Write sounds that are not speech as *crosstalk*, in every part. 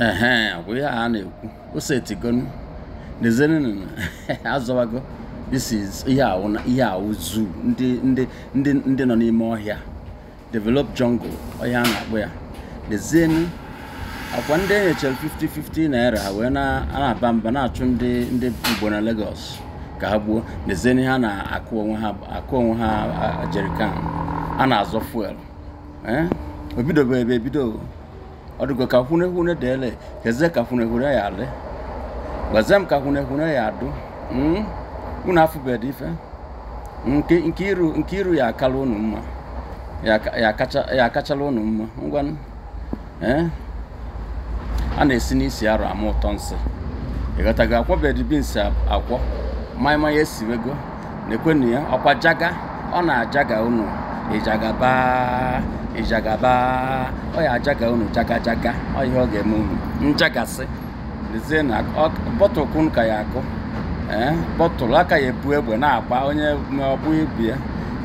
ee ọ ya ihe a na-ekwu osetigo nezenn *laughs* azọwago this is ihe awụ zuu ndị nọ n'ime ọhịa develop jungle ọhịa a na-akpọ ya nezenụ akwa ndị NHL 5050 50-50 naira wee na-aba mba na-achụ ndị ndị Igbo na Lagos ka ha gbuo nezenụ ha na-akụ onwe ha akụ onwe ha jerikan a na-azọ fuel eh? o ebe ebido ɔdugɔ kahunehune ɖe le heze kahunehune ya le gbazem kahunehune ya do mm una fu be di fe hmm, nke nkiru nkiru ya akala unu mma ya ya kacha ya unu mma ngwanụ a na-esi n'isi arụ ama ụtọ nsị ịghọtago akwa bed bins akwọ maịma ya esiwego na ekwenu ya ọkwa jaga ọ na-ajaga unu ịjagaba ịjagaba ọ ya ajaga unu jagajaga ọ ihe ọ ga-eme unu njagasị lezie na bọtụl kun ka ya akụ ee eh, bọtụlụ aka ya ebu egbe na-agba onye ọbụ ibi ya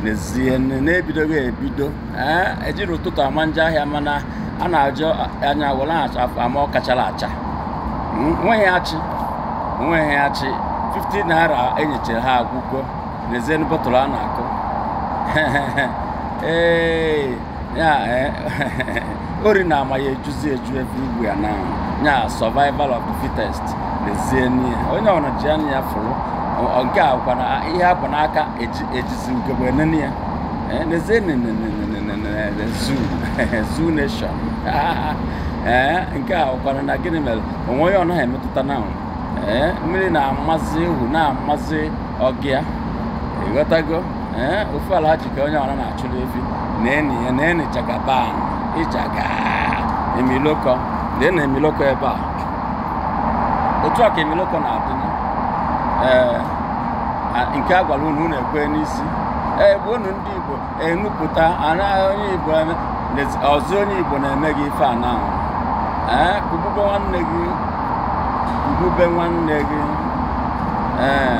n'ezie na-ebidoghị ebido ee eh, ejiri ụtụtụ ama nje ahịa mana a na-ajụ anya were acha ama ọ kachara acha hmm, nweghị achị nweghị achị 50 naira enyechara ha agwụgo n'ezie bọtụlụ a na-akụ *laughs* Eh, *laughs* ori na ama ya ejuzi eju everywhere now ya survival of the fittest lezie n'ihe onye ọbụla ji anya ya fụrụ nke a na ihe a bụ n'aka ejizi ugegbe nene ya lezie zoo nation *laughs* eh, nke a kwara na gịnị mere onwe onye ọ emetụta na eh, mmiri na-amazị ewu na-amazị ọgịa ịghọtago ee eh, ala ji ka onye ọra na-achụrụ efi na eni ya na eni jagaban emiloko lee na emiloko ebe a otu ọka emiloko na-adị ee eh, nke a gwara unu na-ekwe n'isi ee eh, gbe unu ndị igbo enupụta onye igbo ọzọ onye igbo na-eme gị ife a ee kugube nwanne gị kugube nwanne gị ee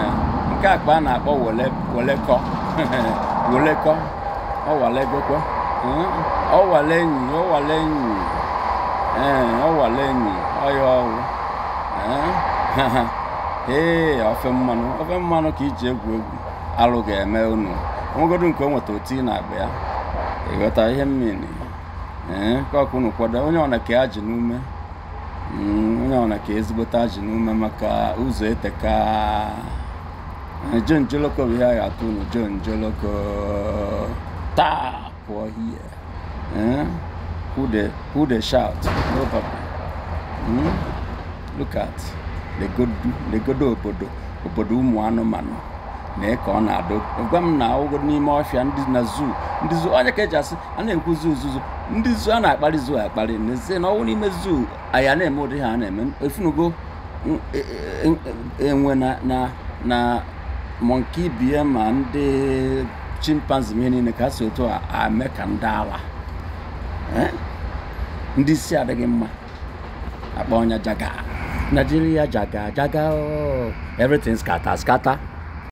nke akpa a na-akpọ welekọ welekọ *laughs* ọwalegokwe ọwale enyi ọwale enyi ee eh, ọwale enyi ọya ọwụ eh, *laughs* ee ofe mmanụ ofe mmanụ ka iji egwu egwu alụ ga-eme unu nwegodu nke o oti na agba ịghọta ihe mmiri ee eh, ka ọkụ unu kwado onye ọna ka ya ji n'ume hmm, onye ọna ka ezigbote ji n'ume maka ụzọ eteka John Joloko bụ ya atụ taa pụọ hie who who dey shout no legodo obodo obodo ụmụ anụmanụ na ka na-adụ m na n'ime ọfịa ndị na onye ka eji asị a na-ekwu zoo ndị a na akpali zoo akparị n'ezie na ọnwụ n'ime zoo aya na-eme ụdị ha na-eme efunugo enwe na na na mọnki bie ma ndị chimpanzee ihe niile ka si otu a eme ka ndị ala ndị isi adịghị mma akpa ọnya jaga Nigeria jaga jaga oh. everything scatter scatter